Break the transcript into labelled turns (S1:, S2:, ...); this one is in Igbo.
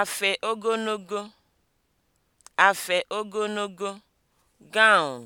S1: afe ogologo (afe ogologo) gown